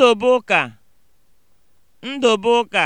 Ndụbụka Ndụbụka